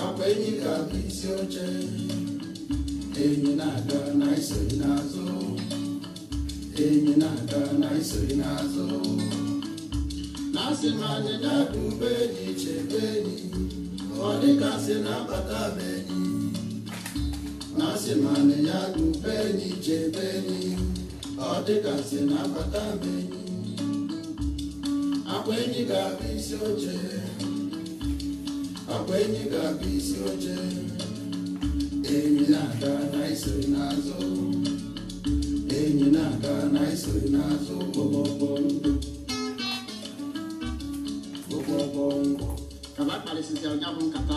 Akwa enyi ga abụ isi oche enyi na-aga na isori n'azụ enyi na-aga na isori n'azụ na-asị m anyị dada ube enyi chebe enyi ọ dịka sị na-abata be enyi na-asị m anyị ya da ube enyi chebe enyi ọ dịka sị na-abata be enyi akpa enyi ga-abụ isi oche akwa eji ga-abụ isi oche enyi na-aga na iso n'azụ enyi na-aga na iso n'azụ ụgbọgbọndụ ụgbọgbọndụ ka ba bụ nkata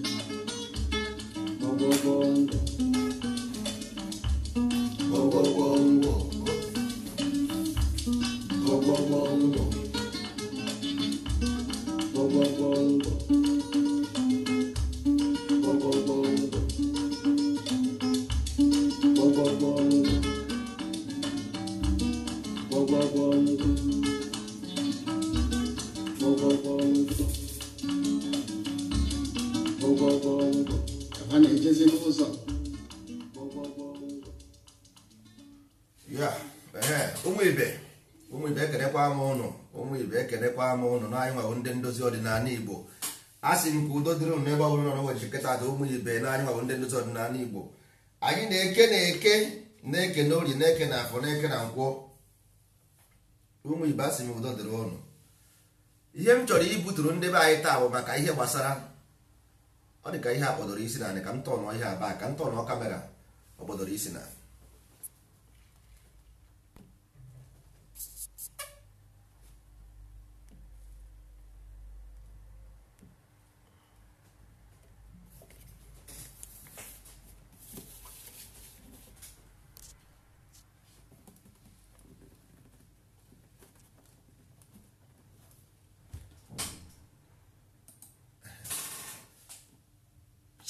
ibe ekenekwa ama ụnụ ụmụ ibe ekenekwa ama ụnụ na anyị ndị ndozi ọdịnala igbo a sị nke udo dịrị ụnụ n'ebe ọbụla nọ ụbọchị nkịta dị ụmụ ibe na anyị ndị ndozi ọdịnala igbo anyị na-eke na-eke na-eke na ori na-eke na afọ na-eke na nkwọ ụmụ ibe a sị m udo dịrị ụnụ ihe m chọrọ ibuturu ndị be anyị taa bụ maka ihe gbasara ọ dị ka ihe a kpọdoro isi na ka m tọnụ ihe aba ka m tọnụ kamera ọ kpọdoro isi na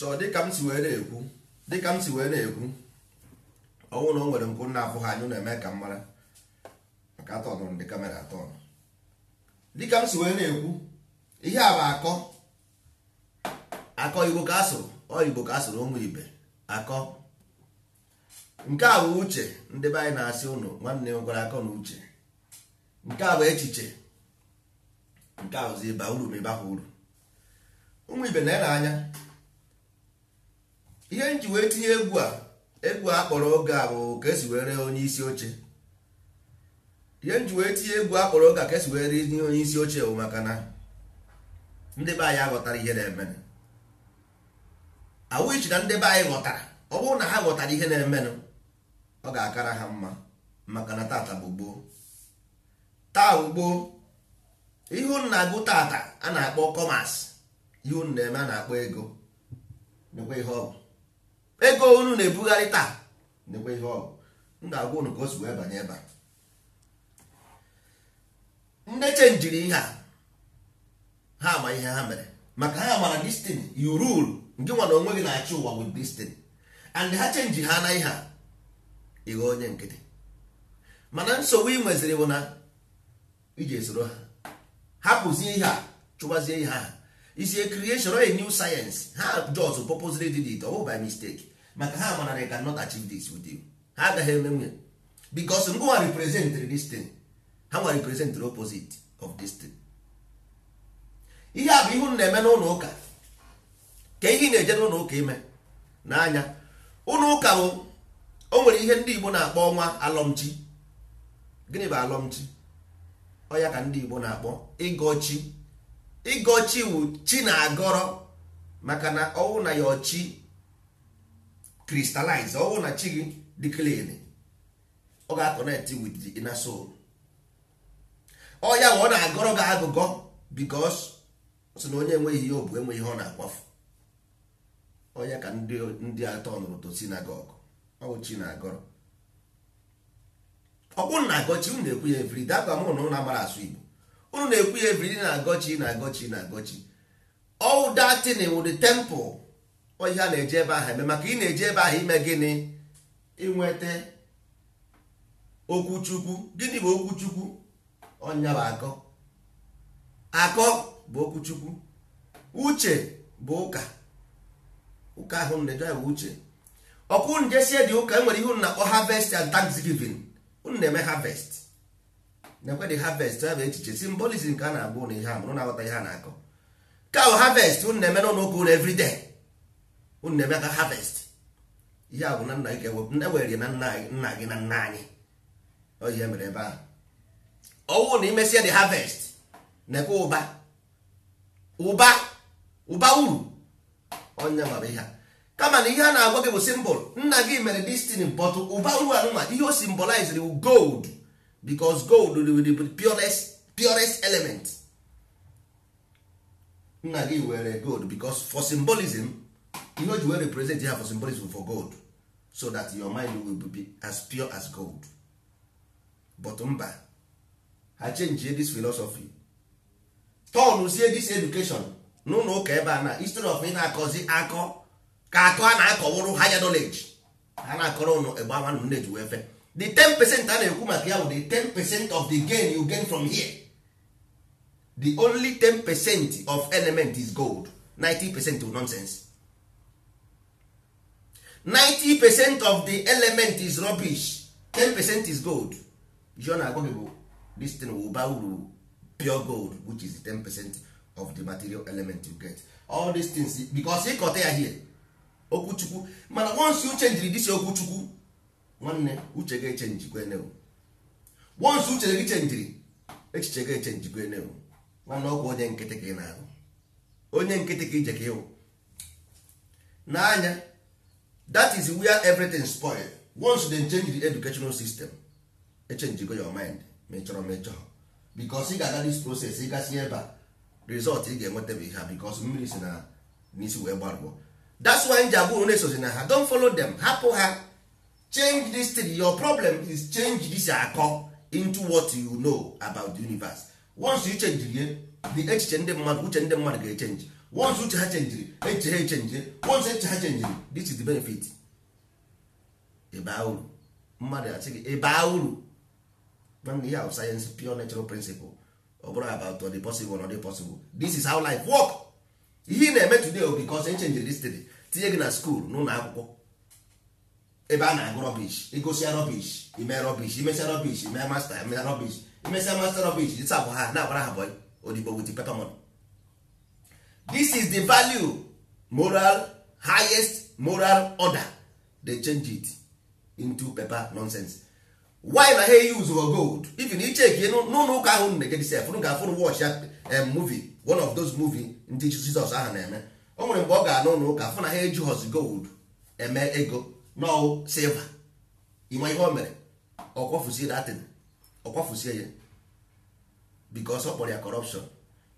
so dịka m si wee na-ekwu dịka m si wee na-ekwu ọnwụ na o nwere nkwụ nna abụghị anyị na-eme ka m mara maka atọnụrụ ndị kamera atọnụ dịka m si wee na-ekwu ihe a bụ akọ akọ igbo ka asụrụ ọ igbo ka asụrụ ụmụ ibe akọ nke a bụ uche ndị be anyị na-asị ụnụ nwanne nwekwara akọ na uche nke a bụ echiche nke a bụzi ịba uru ma ịbakwa uru ụmụ ibe na-ere anya ihe nji wee tinye egwu a egwu a kpọrọ oge a bụ ka esi were onye isi oche ihe nji wee tinye egwu a kpọrọ oge a ka esi were tinye onye isi oche bụ maka na ndị be anyị aghọtara ihe na-emenụ awụichi na ndị be anyị ghọtara ọ bụrụ na ha ghọtara ihe na-emenụ ọ ga-akara ha mma maka na tata bụ gboo taa ugbo ihu na-agụ tata a na-akpọ kọmas ihu na-eme a na-akpọ ego nekwa ihe ọ bụ ego unu na-ebugharị taa nekwe ihe ọgụ m ga-agwa unu ka o si wee banye ebe a ndị chenjiri ihe a ha ama ihe ha mere maka ha mara destiny you rule nke nwa na onwe gị na-achị ụwa with destiny and ha chenji ha na ihe a ịghọ onye nkịtị mana nsogbu ị nweziri bụ na iji esoro ha hapụzie ihe a chụbazie ihe ha isi creation a new sayensị ha jos popoziri dị dị ọ bụ by mistake maka ha mana they cannot achieve this with you ha agaghị eme nwunye bicos ngwa representri this ha nwa representri opposite of this ihe a bụ ihu na-eme n'ụlọ ụka ka ihe na-eje n'ụlọ ụka ime n'anya ụlọ ụka bụ o nwere ihe ndị igbo na-akpọ ọnwa alọmchi gịnị bụ alọmchi ọya ka ndị igbo na-akpọ ịgọchi ịgọchi wu chi na agọrọ maka na ọnwụ na ya ọchi crystallize ọ bụrụ na chi gị dị clean ọ ga-akọnekt with the inner soul ọ ya ọ na-agọrọ gị agụgọ because sị na onye enweghị ihe obu enweghị ihe ọ na-akwafu onye ka ndị atọ nụrụ to sinagog ọwụ chi na-agọrọ ọkpụ na-agọchi ụnụ na-ekwu ya evri dakwa mụ na ụlọ amara asụ Igbo ụnụ na-ekwu ya evri na-agọchi na-agọchi na-agọchi all that thing with the temple ihe a na-eje ebe ahụ eme maka ị na-eje ebe ahụ ime gịnị inweta okwuchukwu gịnị bụ okwuchukwu ọnya bụ akọ akọ bụ okwuchukwu uche bụ ụka ụka ahụ na-eje bụ uche ọkụ unu dị ụka enwere ihe unu na-akpọ harvest and thanksgiving unu na-eme havest na-ekwedị harvest ya bụ echiche simbolism ka a na-agba ụnụ ihe a mụrụ na-aghọta ihe a na-akọ ka bụ harvest unu na-eme n'ụlọ ụka unu everyday unu na-eme aka harvest ihe a bụ na nna gị ewere na nna gị na nna anyị oyi mere ebe ahụ ọnwụ na imesia the harvest na-ekwe ụba ụba ụba uru onye nwere ihe kama na ihe a na-agwa gị bụ simbol nna gị mere destiny but ụba uru anụma ihe o symbolized gold because gold be purest purest element nna gị were gold because for symbolism ihe o ji wee represent ya for symbolism for gold so that your mind will be as pure as gold but mba ha change this philosophy turn sie this education n'ụlọ ụka ebe a na history of ị na-akọzi akọ ka akọ a na-akọwụrụ higher knowledge ha na-akọrọ ụnụ egbe ama nne ji wee fe the 10% a na-ekwu maka ya bụ the 10% of the gain you gain from here the only 10% of element is gold 90% is nonsense 90 percent of the element is rubbish 10 percent is gold john agwaghị bụ this thing will buy uru pure gold which is the 10 percent of the material element you get all these things because ịkọta ya here okwuchukwu mana once you change this okwuchukwu nwanne uche ga echenji gwenewu once uche gị chenjiri echiche ga echenji gwenewu nwanne ọgwụ onye nkịtị ka ị na-ahụ onye nkịtị ka ije ka ịwụ n'anya that is where everything spoil once they change the educational system echenjigo your mind ma ị chọrọ ị ga-aga this process ị gasị ebe a result ị ga-enweta bụ ihe a bikos mmiri si na n'isi wee gbarụọ that's why nji abụrụ na-esozi na ha follow them hapụ ha change this thing your problem is change this akọ into what you know about the universe once you change the echiche ndị mmadụ uche ndị mmadụ ga-echenji once uche ha chenjiri eche ha echenji once eche ha chenjiri this is the benefit ịbaa uru mmadụ asị gị ịbaa uru nwanne ihe ahụ sayensị pure natural principle ọ bụrụ about the possible ọ dị possible this is how life work ihe ị na-eme today o bikos echenjiri this today tinye gị na skuul n'ụlọ akwụkwọ ebe a na-agụ rọbish igosia rọbish ime rọbish imesia rọbish ime masta ime rọbish imesia masta rọbish dịsa abụ ha na-agbara ha bọị odibo paper pepamon this is the value moral highest moral order they change it into paper nonsense why na ha use for gold even ichek n'ụlọ ụka ahụ na egedis fụrụ ga afụrụ watch ya movie one of those movie ndị Jizọs ahụ na-eme o nwere mgbe ọ ga-anụ ụka fụ na ha eji hos gold eme ego n'o silver ịma ihe o mere ọkwafuzie datin ọkwafuzie ya bikos ọ kpọrọ ya corruption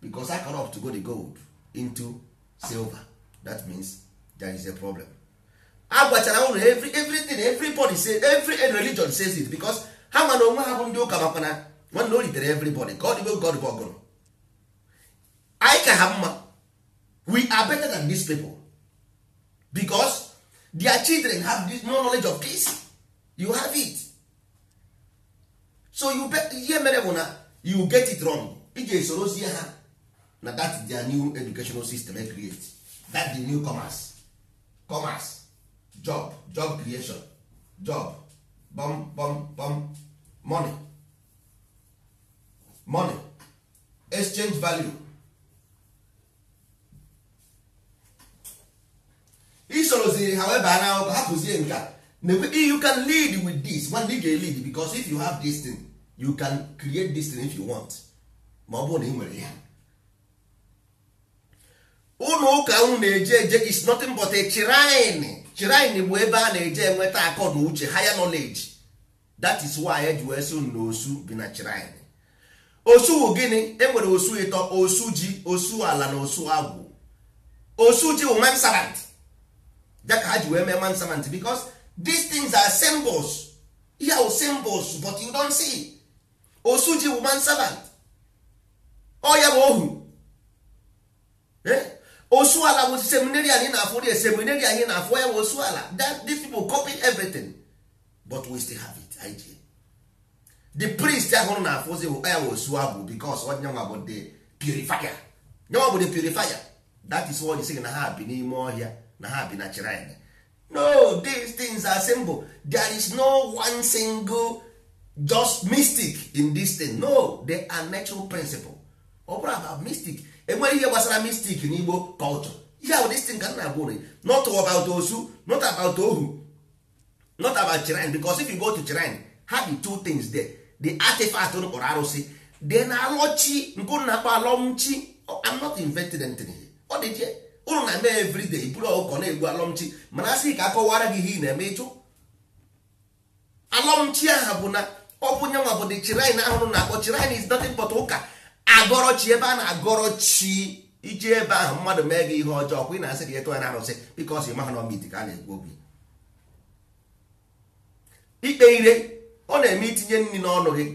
bikos a corrupt go the gold into silver that means there is a problem a ụlọ unu every everything everybody say every religion says it because ha nwa onwe ha bụ ndị ụka makwa na nwanne o ritere everybody ka ọ dịgo god bụ ọgụrụ anyị ka ha mma we are better than these people because their children have this knowledge of peace you have it so you bet ihe mere bụ na you get it wrong ị ga ha na that their new educational system e create that the new commerce commerce job job creation job bom bom bom money money exchange value isoroziri ha weba na ụka hapụzie nka you can lead with this nwanne ga lead because if you have this thing you can create this thing if you want ma ọ bụrụ na ị nwere ya ụlọ ụka unu na-eje eje is nothing but a shrine shrine bụ ebe a na-eje enweta akọ na uche higher knowledge that is why eji wee sị na osu bi na shrine osu wụ gịnị e nwere osu ịtọ osu ji osu ala na osu agwụ osu ji wụ mansarant ya ha ji wee mee mansarant because these things are symbols ihe bụ symbols but you don't see osu ji wụ mansarant ọ ya bụ ohu eh? osu ala bụ seminary anyị na-afụ dị seminary anyị na-afụ ya bụ osu ala that these people copy everything but we still have it ig the priest ahụrụ na-afụzi bụ ya osu abụ because onyenwa bụ the purifier nyenwa bụ the purifier that is what sị na ha bi n'ime ọhịa na ha bi na chirine no these things are simple there is no one single just mystic in this thing no they are natural principle ọ bụrụ about mystic enweghị ihe gbasara mistik na igbo culture ihe ahụ destin ka nna gwụrụ not about osu not about ohu not about shrine because if you go to shrine ha bi two things there the artifact n kpọrọ arụsị na alọchi nke na akpọ alọmchi oh, I'm not invented anything ọ dị jee ụlọ na mee everyday bụrụ ọkụkọ na-egbu alọmchi mana a ka akọwara gị ihe ị na-eme ịchụ alọmchi aha bụ na ọ bụ nyanwa bụ the shrine ahụrụ na akpọ shrine is nothing but ụka agọrọ chi ebe a na-agọrọ chi iji ebe ahụ mmadụ mee gị ihe ọjọọ kwa ị na-asị gị etụ ya na arụsị bikos ịmaha na ọmit ka a na-ekwu obi ikpe ire ọ na-eme itinye nri n'ọnụ gị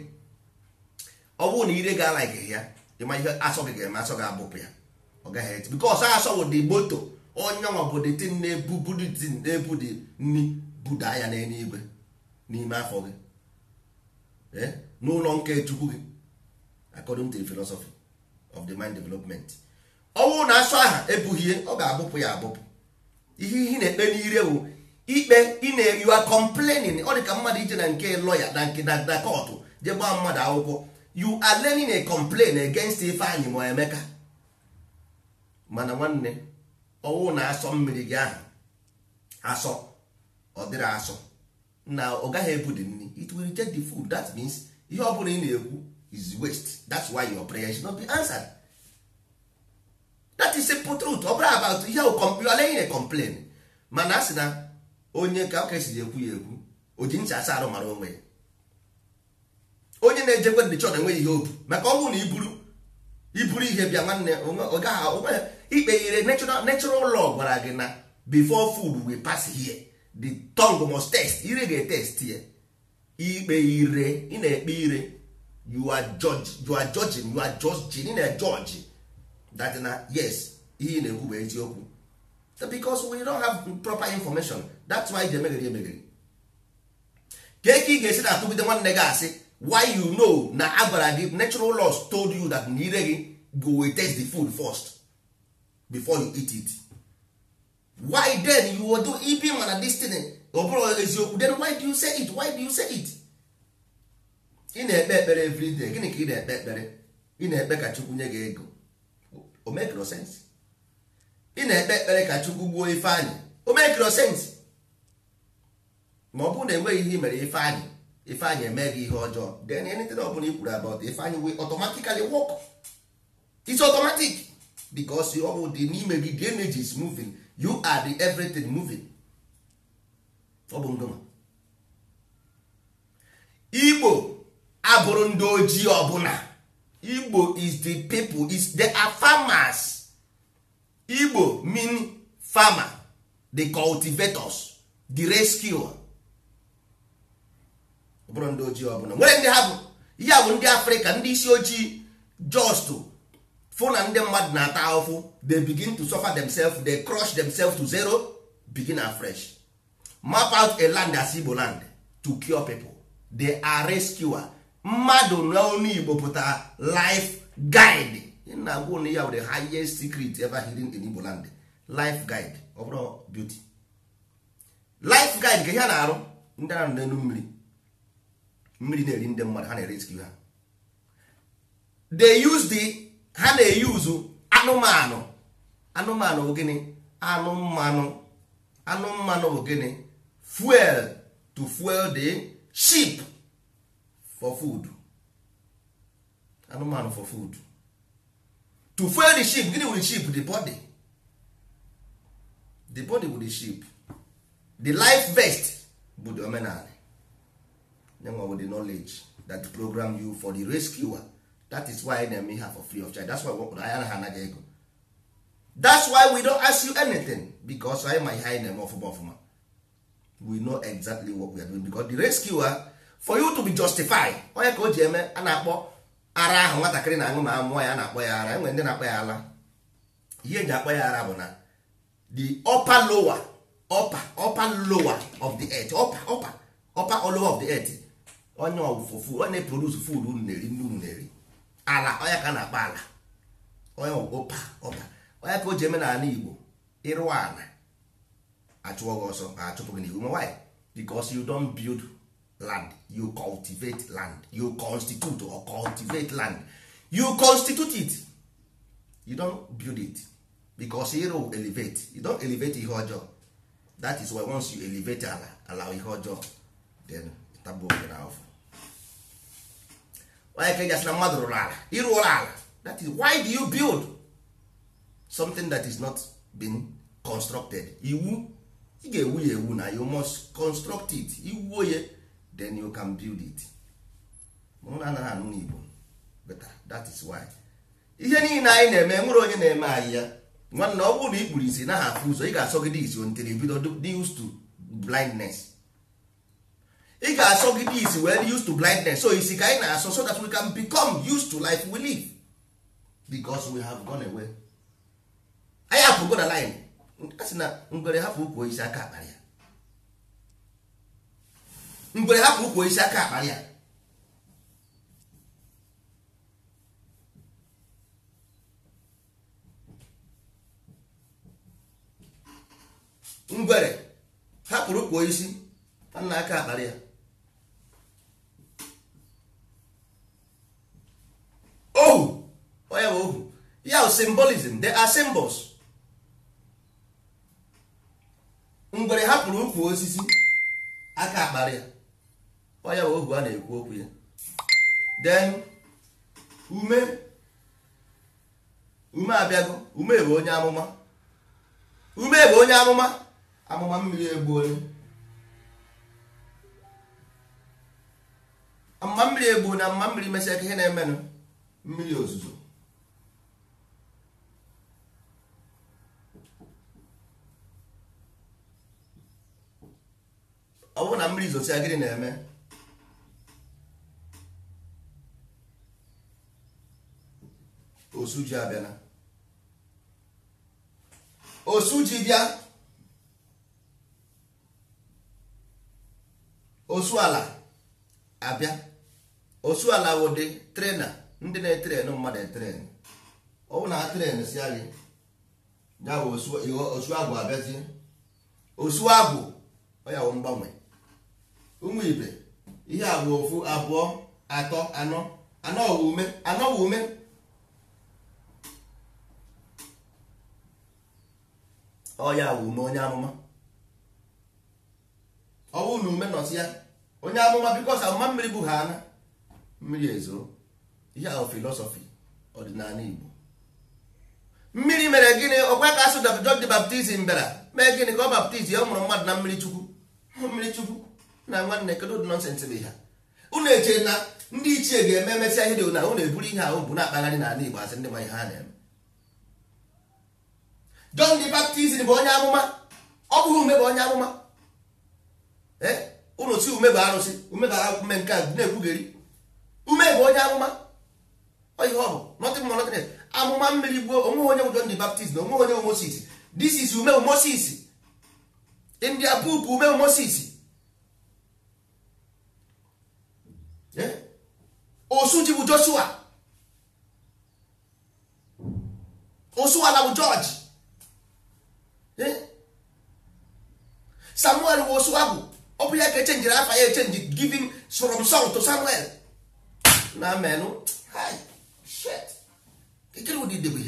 ọ bụrụ na ire ga-ala gị ya ịma ihe asọ gị ga-eme asọ gị abụpụ ya ọ gaghị eti bikos asọ bụ dị moto onye nwa bụ dị tin na-ebu dị nri buda ya igwe n'ime afọ gị eh? n'ụlọ nke chukwu gị according to the philosophy of the mind development ọnwụ na asụ aha ebughie ọ ga-abụpụ ya abụpụ ihe ihe na-ekpe n'ire wụ ikpe ị na you are complaining ọ dịka mmadụ ije na nke lọya na nke na kọtụ je gbaa mmadụ akwụkwọ you are learning a complain against Ifeanyị ma Emeka mana nwanne ọnwụ na asọ mmiri gị ahụ asọ ọ dịrị asọ na ọ gaghị ebu dị nri it will reject the food that means ihe ọ bụla ị na-ekwu is waste that's why your prayer should not be answered that is simple truth ọ bụrụ about ihe oleghị na complain mana a sị na onye ka ọka esi ekwu ya ekwu o ji ncha asa arụ mara onwe ya onye na-ejekwe ndị chọrọ enweghị ihe obu maka ọ bụrụ na iburu iburu ihe bịa nwanne ọ gaghị ikpe ire natural law gwara gị na before food we pass here the tongue must test ire ga-etest ya ikpe ire ị na-ekpe ire you are judge you are judging you are judging na judge that na yes ihe na-ekwu bụ eziokwu because we don't have proper information that's why dey megiri emegiri ka eke ị ga-esi na-atụgide nwanne gị asị why you know na agbara gị natural laws told you that na ire gị go we test the food first before you eat it why then you do ibi mana dis thing ọ bụrụ eziokwu then why do you say it why do you say it ị na-ekpe ekpere everyday gịnị ka ị na-ekpe ekpere ị na-ekpe ka chukwu nye gị ego o mekro ị na-ekpe ekpere ka chukwu gbuo ifeanyị anyị mekro sense ma ọ bụrụ na enweghị ihe mere i anyị ifeanyị anyị eme gị ihe ọjọọ then anything ọ bụla i kwuru about anyị will automatically wọk it's automatic because ọ bụ dị n'ime gị the energy is moving you are the everything ọ bụ ngoma igbo abụrụ ndị ojii ọbụla igbo is the people is they are farmers igbo mean farmer the cultivators the rescue ọbụrụ ndị ojii ọbụla nwere ndị ha bụ ihe bụ ndị afrịka ndị isi ojii just fụ na ndị mmadụ na-ata ahụhụ they begin to suffer themselves they crush themselves to zero begin afresh map out a land as igbo land to cure people they are rescuer mmadụ n'ọnụ igbo pụtara life guide na agwa ụnụ ya were highest secret ever hidden in igbo land life guide ọ bụrụ beauty life guide ka ihe a na-arụ ndị ahụ n'elu mmiri mmiri na-eri ndị mmadụ ha na-erescue ha they use the ha na-eyuzu anụmanụ anụmanụ bụ gịnị anụmanụ mmanụ bụ gịnị fuel to fuel the ship for food anụmanụ for food to fuel the ship gịnị wụrụ ship the body the body wụrụ the ship the life vest bụ the omenala nyenwa with the knowledge that program you for the rescuer that is why na-eme ha for free of charge that's why wepụrụ anya ha anaghị ego that's why we don't ask you anything because anyị ma ihe anyị na-eme ọfụma ọfụma we know exactly what we are doing because the rescuer for you to be justified onye ka o ji eme a na-akpọ ara ahụ nwatakịrị na-aṅụ ma amụọ ya na-akpọ ya ara enwere ndị na-akpọ ya ala ihe eji akpọ ya ara bụ na the upper lower upper upper lower of the earth upper upper upper or lower of the earth onye ọwụfụ onye produce food unu na-eri ndị unu na-eri ala onye ka na-akpọ ala onye ọpa ọpa onye ka o ji eme na ala Igbo ịrụwa ala achụọ gị ọsọ achụpụ gị n'ihu ma why because you don't build land you cultivate land you constitute or cultivate land you constitute it you don't build it because ịrụ elevate you don't elevate ihe ọjọọ that is why once you elevate ala ala ihe ọjọọ then tabuokena afọ onye ka gasị na mmadụ rụrụ ala ịrụọla ala that is why do you build something that is not been constructed iwu ị ga-ewu ya ewu na you must construct it iwuo ya then you can build it na anaghị anụ n'igbo better ah, that is why ihe niile anyị na-eme nwere onye na-eme anyị ya nwanna ọ bụrụ na ikpuru isi naghị afụ ụzọ ị ga-asọgide isi until you bido dị used to blindness ị ga-asọgide isi wee dị used to blindness so isi ka anyị na-asọ so that we can become used to life we live because we have gone away anyị apụgo na line a na ngwere hapụ ukwu isi aka akpara ya ngwere ngwere hapụrụ ụkwụ isi aka akpara ya ohu onye bụ ohu ya symbolism are symbols ngwere hapụrụ osisi aka akpara ya ọya ohu a na-ekwu okwu ya Den ume ume abịago ume bụ onye amụma ume bụ onye amụma amụma mmiri egbuole Amụma mmiri egbu na amụma mmiri mesịa ka ihe na-emenụ mmiri ozuzo ọ bụrụ na mmiri zosia gịnị na-eme osuji abịana osuji bịa ala abịa ala wụdị trena ndị na etere mmadụ etrenu ọwụ na trenu si gị ya bụ osu agwụ abịazie osu agwụ ọya wụ mgbanwe ụmụ ibe ihe agwụ bụ ofu abụọ atọ anọ anọ wụ ume anọ wụ ume ọya wụ ume onye amụma ọ bụrụ na ume nọzi ya onye amụma bikos amụma mmiri bụ ha ana mmiri ezo ihe ahụ filosọfi ọdịnala Igbo mmiri mere gịnị ọkwa ka asụ John the Baptist bịara mee gịnị ka ọ baptizim ọ mụrụ mmadụ na mmiri chukwu mmiri chukwu na nwanne kedu ụdị nọnsensị bụ ha unu eche na ndị ichie ga-eme emesịa ihe dị na unu eburu ihe ahụ bụ na-akpagharị n'ala Igbo asị ndị ma ihe ha na-eme John the Baptist bụ onye amụma ọ bụghị ume eh? bụ onye amụma ụlọ si ume bụ arụsị ume gara ume nke a na-ekwugheri ume bụ onye amụma ihe ọ bụ nọtị mma nọtị amụma mmiri gbuo onwe onye bụ John the Baptist na onye bụ Moses this is ume bụ Moses india poop ume bụ eh? osuji bụ Joshua osu ala bụ George Hmm? samuel wụ osu abụ ọ bụ ya ka echenjiri afa ya echenji giving from song to samuel na menụ ụdị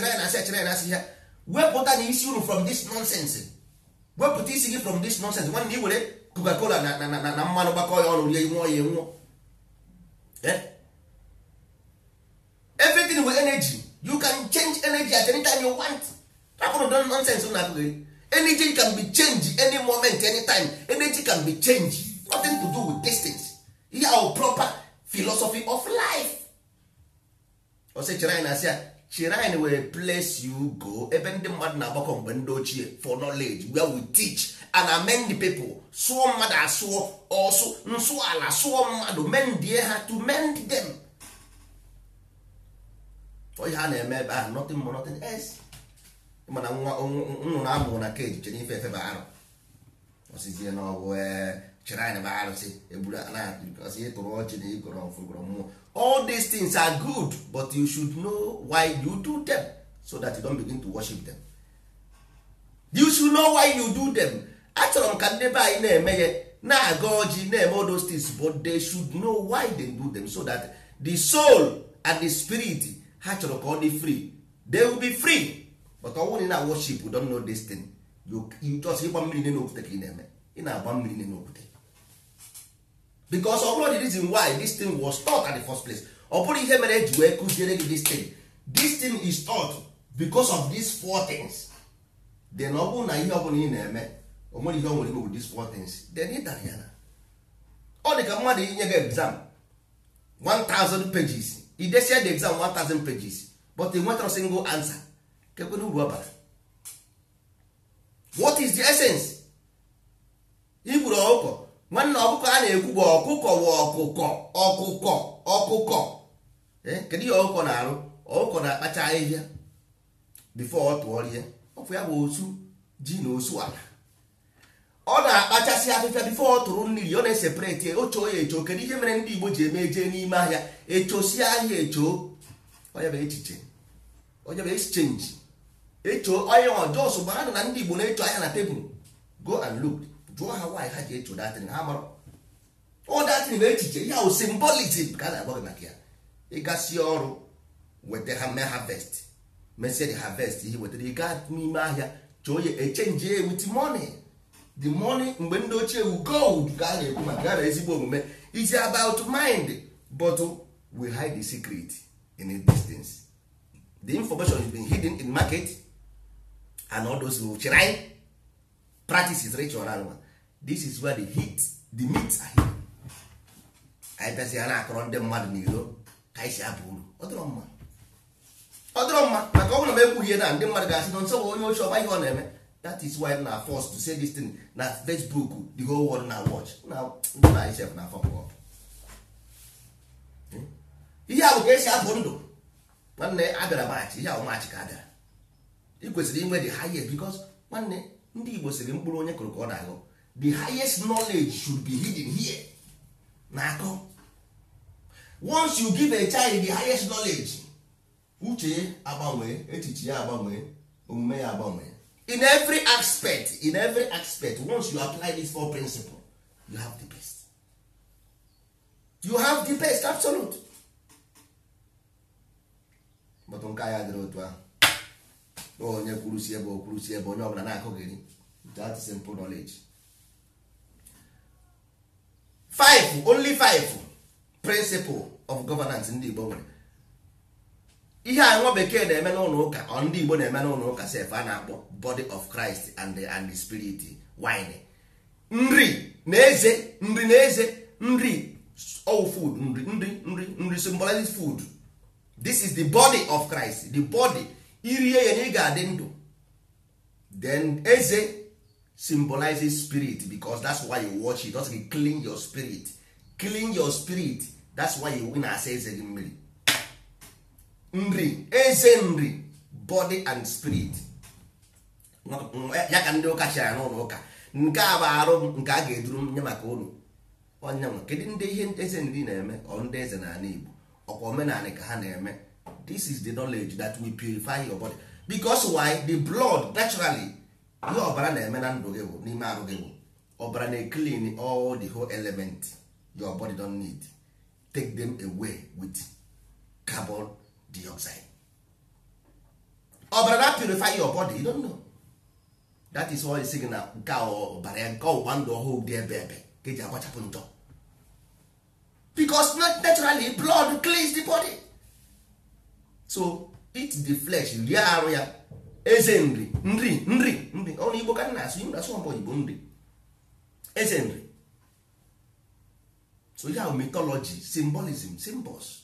ya ya na asị ya na asị ya wepụta na isi uru from this nonsense wepụta isi gị from this nonsense nwanne ị were coca na na na mmanụ gbakọ ya ọrụ rie nwụọ ya nwụọ everything with energy you can change energy at any time you want rapụrụ don nonsense na akụghị eh? energy can be changed any moment any time energy can be changed nothing to do with distance ihe ahụ proper philosophy of life ọsị chere anyị na-asị ya chere place you go ebe ndị mmadụ na-agbakọ mgbe ndị ochie eh, for knowledge where we teach and amend the people sụọ mmadụ asụọ ọsụ nsụ ala sụọ mmadụ mendie ha to mend them onye ha na-eme ebe ahụ nothing more nothing else mana nwa nnụnụ amụrụ na keji chere ife efe arụ osizie na ọgwụ e, chere anyị arụsị egburu anaghị ịtụrụ ọchị na ịgọrọ ọfụgọrọ mmụọ all these things are good but you should know why you do them so that you don't begin to worship them you should know why you do them achọrọ m ka ndị be anyị na-eme ya na-aga ọjị na-eme all those spirit ha chọrọ ka ọ dị free they will be free but ọ bụrụ na ị worship don't know this thing just ịgba mmiri nne n'okwute ka ị na-eme ị na-agba mmiri nne n'okwute because ọ bụrụ the reason why this thing was taught at the first place ọ bụrụ ihe mere eji wee kụziere gị this thing this thing is taught because of these four things then ọ bụrụ na ihe ọ bụla ị na-eme o nwere ihe ọ nwere ime with these four things then ị dara ya na ọ dị ka mmadụ inye gị exam 1000 pages i desia the exam 1000 pages but nwetara single answer kekwena uru ọbara what is the essence igburu ọkụkọ nwanne ọkụkọ a na-ekwu bụ ọkụkọ wụ ọkụkọ ọkụkọ ọkụkọ kedu ihe ọkụkọ na-arụ ọkụkọ na-akpacha ahịhịa bifo ọ tụọrịa ọkụ ya bụ osu ji na osu ala ọ na-akpachasị afịfịa bifo ọ tụrụ mmiri ọ na-esepareti ochoo ya echo kedu ihe mere ndị Igbo ji eme jee n'ime ahịa echosi ahịa echo onye bụ echiche onye bụ exchange echo onye ọjọọ gbara na ndị Igbo na-echo ahịa na tebụl go and look jụọ ha nwaanyị ha ji echo datin ha mara ọ datin bụ echiche ya o simbolism ka a na-agwa gị maka ya ịgasị ọrụ weta ha mee harvest mesie gị harvest ihe wetara ịga n'ime ahịa choo ya echenji ya with money the money mgbe ndị ochie wu gold ga a na-ekwu maka ya na ezigbo omume is about mind but we hide the secret in a distance the information is being hidden in market and all those chirine practices rich and one this is where the heat the meat are hidden anyị bịazi ya na-akọrọ ndị mmadụ n'iro ka anyị si abụ uru ọ dịrọ maka ọ bụla m ekwughị ihe na ndị mmadụ ga-asị na nsọ bụ onye ochie ọgba ihe ọ na-eme that is why na forced to say this thing na facebook the whole world na watch ndị na isef na afọ mgbe hmm? ihe a ka esi abụ ndụ nwanne abịara maachị ihe ahụ maachị ka abịara bịara ị kwesịrị inwe the highest because nwanne ndị igbo siri mkpụrụ onye kụrụ ka ọ na-agụ the highest knowledge should be hidden here na-akọ once you give a child the highest knowledge uche agbanwee echiche ya agbanwee omume ya agbanwee in every aspect in every aspect once you apply these four principle you have the best you have the best absolute but nke ya dịrị otu ahụ onye kwuru si ebe okwuru si ebe onye ọbụla na-akụghịrị that simple knowledge five only five principle of governance ndị Igbo nwere ihe anyị nwa bekee na-eme n'ụlọ ụka ọ ndị Igbo na-eme n'ụlọ ụka sef a na-akpọ body of Christ and the, and the spirit wine nri na eze nri na eze nri all food nri nri nri nri symbolizes food this is the body of Christ the body irie ya na ị ga-adị ndụ then eze symbolizes spirit because that's why you watch it doesn't clean your spirit clean your spirit that's why you win asa eze gị mmiri nri eze nri body and spirit ya ka ndị ụka chịara n'ụlọ ụka nke a bụ arụ nke a ga-eduru nye maka ụlọ onyanwa kedu ndị ihe eze nri na-eme ọ ndị eze na n'ala Igbo ọkwa omenala ka ha na-eme this is the knowledge that will purify your body because why the blood naturally ihe ọbara na-eme na ndụ gị bụ n'ime arụ gị bụ ọbara na-eclean all the whole element your body don need take them away with carbon Di outside ọbara na purify your body you don't know that is why sị na nke ọbara ya nke ọgbụgba ndụ ọhụụ dị ebe ebe ka eji agbachapụ ntọ because naturally blood cleans the body so it the flesh rie arụ ya eze nri nri nri nri ọrụ igbo ka na-asụ igbo asụ igbo nri eze nri so ya ahụ mythology symbolism symbols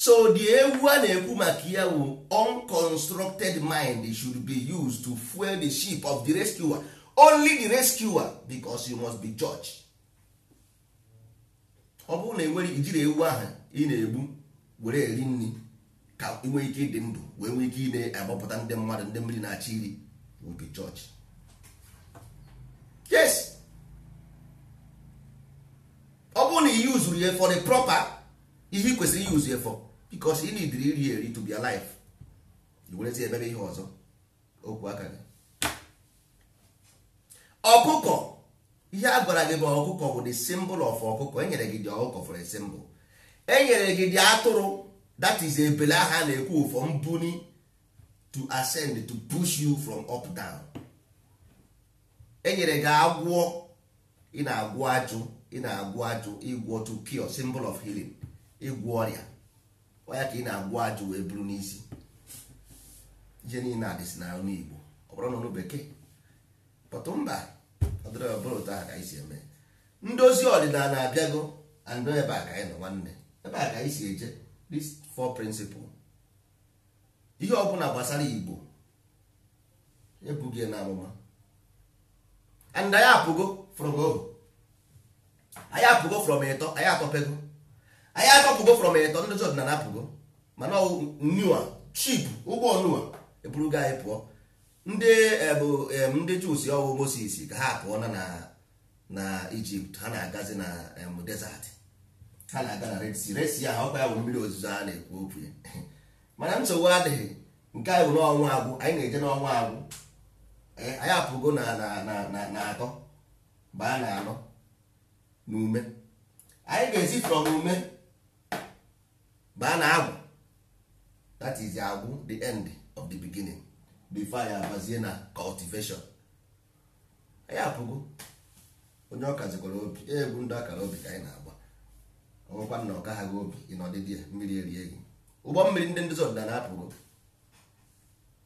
so the ewu a na-ekwu maka ya bụ unconstructed mind should be used to fuel the ship of the rescuer only the rescuer because you must be judge ọ bụrụ na enwere ijiri ewu ahụ ị na-egbu were eri nri ka inwe e ike ịdị ndụ wee nwee ike ị na-agbapụta ndị mmadụ ndị mmiri na-achị iri will be judge yes ọ bụrụ na ihe yuzuru ya for the proper ihe ị kwesịrị use ya for because ị nidiri iri eri to be alive werezi ebere ihe ọzọ okwu aka gị ọkụkọ ihe a gwara gị bụ ọkụkọ bụ the symbol of ọkụkọ enyere gị dị ọkụkọ for a symbol enyere gị dị atụrụ that is ebele aha na-ekwu for mbuni to ascend to push you from up down enyere gị agwọ ị na-agwọ ajụ ị na-agwọ ajụ ịgwọ to cure symbol of healing ịgwọ ọrịa ya ka ị na-agwa ajụ wee buru n'isi ije niile adịsị na anụ Igbo ọ bụrụ n'ọnụ bekee pọtụ mba ọdịrịbụrụ aha ka anyị si eme ndozi ọdịnala abịago andụ ebe a ka anyị nọ nwanne ebe a ka anyị si eje these four principles ihe ọbụla gbasara Igbo ebughị na and anyị apụgo from ohu anyị apụgo from ịtọ anyị atọpego anyị akọpụgo from eletọ ndị na apụgo mana nua chip ụgwọ nua eburugo anyị e pụọ ndị e, bụ e, ndị jus ọwụ Moses ka ha pụọ na na Ijipt ha na-agazi na desert ha na-aga na Red Sea resi ya ha ọkwa ya bụ mmiri ozuzo a na-ekwu okwu ya mana nsogbu adịghị nke anyị bụ n'ọnwa agwụ anyị na-eje n'ọnwa agwụ anyị apụgo na na atọ baa na anọ na ume anyị ga-esi from ume a na agwụ that is agwụ the end of the beginning before ya abazie na cultivation anyị apụgo onye ọkazikwara zikwara obi egwu ndị akara obi ka anyị na-agba ọnwụkwa na ọ gaghị obi ị n'ọdịdị ya mmiri erie gị ụgbọ mmiri ndị ndị ọdịda na-apụgo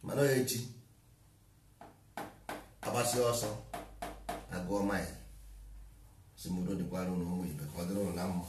mana onye echi agbasi ọsọ agụọ maịl simodo dịkwara ụlọ ụmụ ibe ka ọ dịrị ụlọ na mma